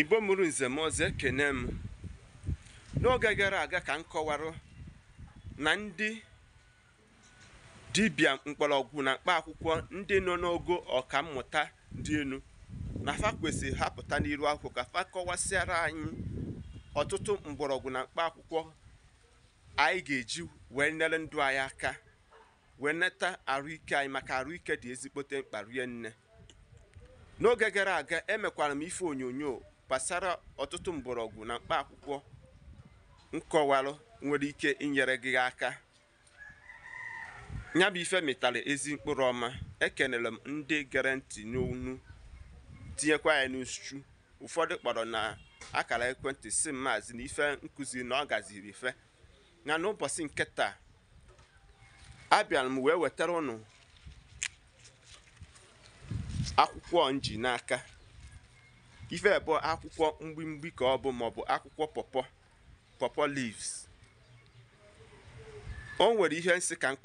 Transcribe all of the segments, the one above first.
igbo mụrụ nze kene m n'oge gara aga ka m kọwarụ na ndị dibịa mgbọrọgwụ na mkpa akwụkwọ ndị nọ n'ogo ọkammụta dị elu na fa kwesịrị hapụta n'iru akwụkwọ ka fa kọwasịara anyị ọtụtụ mgbọrọgwụ na mkpa akwụkwọ anyị ga-eji wee nyere ndụ anyị aka wee nata ahụike anyị maka ahụike dị ezigbote mkpa rie nne n'oge gara aga emekwara m ife onyonyo gbasara ọtụtụ mgbọrọgwụ na mkpa akwụkwọ nkọwarụ nwere ike inyere gị aka ya bụ ife mịtara ezi mkpụrụ ọma ekenere m ndị gere ntị n'onu tinyekwa ya n'uchu ụfọdụ kpọrọ na akara ekwentị si maazị na ife nkụzi na ọ gaziri ife na n'ụbọchị nke taa abịara m wee wetara ụnụ akwụkwọ nji n'aka ife bụ akwụkwọ mgbimgbi ka ọ bụ maọbụ akwụkwọ pọpọ pọpọ leaves o nwere ihe nsị ka m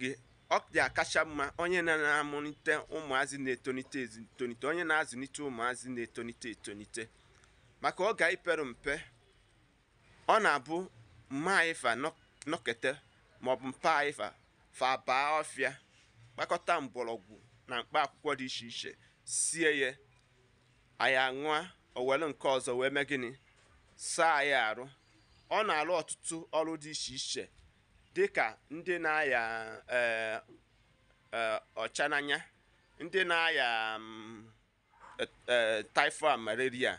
gị ọ dị akacha mma onye na-amụlite ụmụazị na-etonite etonite onye na-azụlite ụmụazị na-etonite etonite maka ọ ga-ipere mpe ọ na-abụ mma anyịfa nọkete maọbụ mpa anyịfa fa ọfịa kpakọta mgbọrọgwụ na mkpa akwụkwọ dị iche iche sie ya anyị aṅụa owelu nke ọzọ wee mee gịnị saa anyị arụ ọ na-alụ ọtụtụ ọrụ dị iche iche dị ka ndị na-aya eh, eh, ọcha n'anya ndị na-aya mm, e, e, typhoid malaria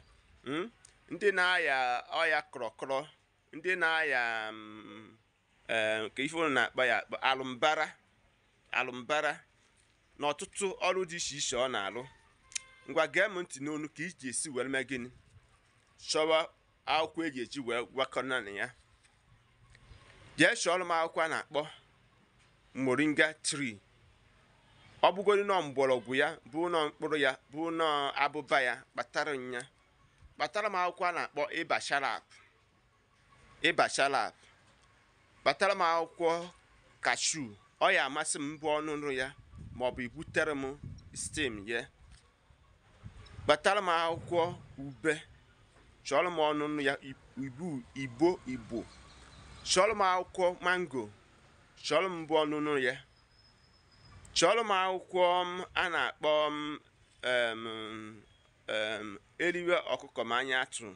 hmm? ndị na-aya ọya kọrọkọrọ ndị na-aya mm, eh, nke ife ụlọ na-akpa ya alụmbara alụmbara na ọtụtụ ọrụ dị iche iche ọ na arụ ngwa gee m ntị n'onu ka iji esi were mee gịnị chọwa akwụkwọ eji eji wee gwakọna na ya jee chọọrọ m akwụkwọ a na-akpọ moringa tree ọ bụgoro nọ mgbọrọgwụ ya bụ nọ mkpụrụ ya bụ nọ abụba ya kpatara ya kpatara m akwụkwọ a na-akpọ ịba sharap ịba sharap kpatara m akwụkwọ kashu ọ ya amasị m bụ ọnụnụ ya maọbụ ibutere m stem ya kpatara m akwụkwọ ube chọrọ m ọnụnụ ya ibu ibo ibo. chọrọ m akwụkwọ mango chọrọ m bụ ọnụnụ ya chọrọ m akwụkwọ um, a na-akpọ um, eriwe ọkụkọ ma anya atụ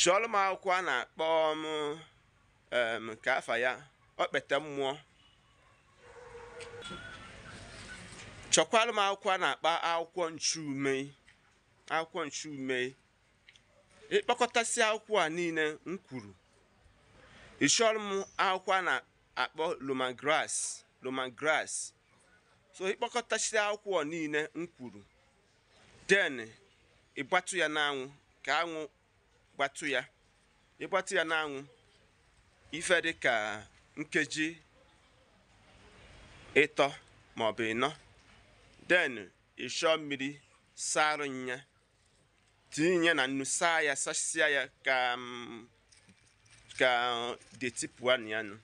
chọrọ m akwụkwọ a na-akpọ m um, ka afa ya kpete mmụọ chọkwalụ m akwụkwọ a na-akpa akwụkwọ nchume akwụkwọ nchume ịkpọkọtasị akwụkwọ a niile m kwuru ịchọrọ m akwụkwọ a na-akpọ loman grass so ịkpọkọtasị akwụkwọ niile m kwuru den ịgbatụ ya n'anwụ ka anwụ gbatụ ya ịgbatụ ya n'anwụ ife dị ka nkeji ịtọ maọbụ ịnọ den ịshọ mmiri sara nya tinye na nnu saa ya sasịa ya ka mm, ka deti na ya nụ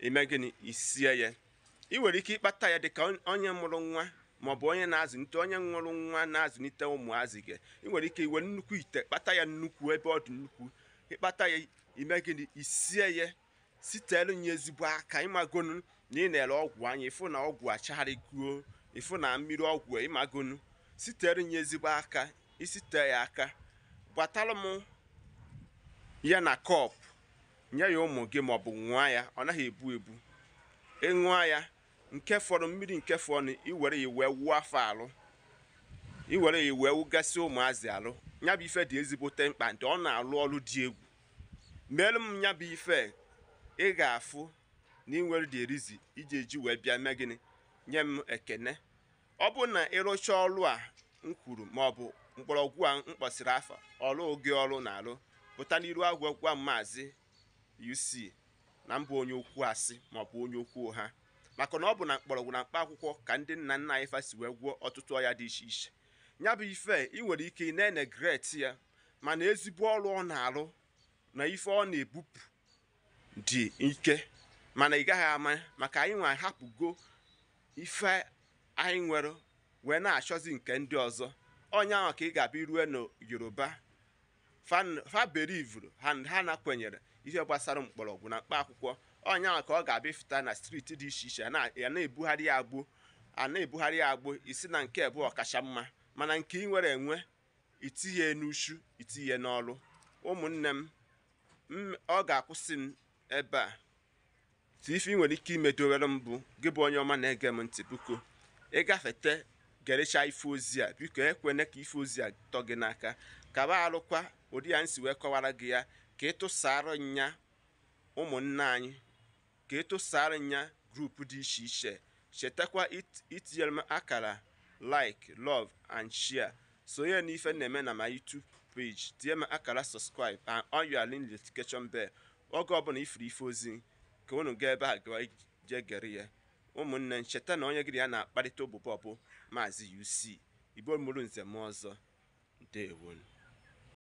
ime gịnị isie ya ị nwere ike ịkpata ya dịka onye mụrụ nwa ma ọ bụ onye na-azụlite onye nwụrụ nwa na-azụlite ụmụazị gị ị nwere ike iwe nnukwu ite kpata ya nnukwu ebe ọ dị nnukwu ịkpata ya ime gịnị isie ya sitelu ya ezigbo aka ịmagonu na ị na-ere ọgwụ anya ịfụ na ọgwụ achagharịguo ịfụ na mmiri ọgwụ ịmagonu sitere nye ezigbo aka isite ya aka gbatalụ m ya na kọp nye ya ụmụ gị maọbụ nwa ya ọ naghị ebu ebu ịṅụa ya nke fọrọ mmiri nke fọrọ iwere ya wee wuo afọ alụ iwere ya wee wugasị ụmụazị alụ nya bụ ife dị ezigbote mkpa ndị ọ na-alụ ọrụ dị egwu meelu m nya bụ ife ị ga-afụ na inwere dị erizi iji eji wee bịa mee gịnị nye m ekene ọ bụrụ na ịrụcha ọrụ a m kwuru maọbụ mgbọrọgwụ a m kpọsịrị afọ ọrụ oge ọrụ na-alụ pụta n'iru agwa gwa maazị UC na mbụ onye okwu asị maọbụ onye okwu ha maka na ọ bụ na mgbọrọgwụ na mkpa akwụkwọ ka ndị nna nna anyị fasi wee gwụọ ọtụtụ ọya dị iche iche ya bụ ife ị nwere ike ị na-enegret ya mana ezigbo ọrụ ọ na-alụ na ife ọ na-ebupụ dị ike mana ị gaghị ama maka anyị nwa hapụgo ife anyị nwere wee na-achọzi nke ndị ọzọ onye ahụ ka ị ga-abịa rue na yoruba faberivru ha na-akwenyere ihe gbasara mgbọrọgwụ na mkpa akwụkwọ onye ahụ ka ọ ga-abịa fụta na striti dị iche iche a na-ebugharị ya agbụ a na-ebugharị ya agbụ isi na nke bụ ọkacha mma mana nke ị nwere enwe itinye n'uchu itinye n'ọrụ ụmụnne m ọ ga-akwụsị m ebe a tiifi nwere ike imedowere m bụ gị bụ onye ọma na-ege m ntị buko ịgafete gerecha ife ozi a biko ekwene ka ife ozi a tọ gị n'aka ba alụkwa ụdị ya nsi wee kọwara gị ya ka ịtụsara nya ụmụnna anyị ka ịtụsara nya grupu dị iche iche chetakwa itinyere m akara like love and share sonye n'ife na-eme na ma YouTube page tinye m akara subscribe and on your notification oge ọbụla ifuru ife ozi ka unu gaa ebe a jee gere ya ụmụnne ncheta na onye gịrị ya na-akparịta obụ ọbụ maazị UC ibo mụrụ nze m ọzọ ndewonu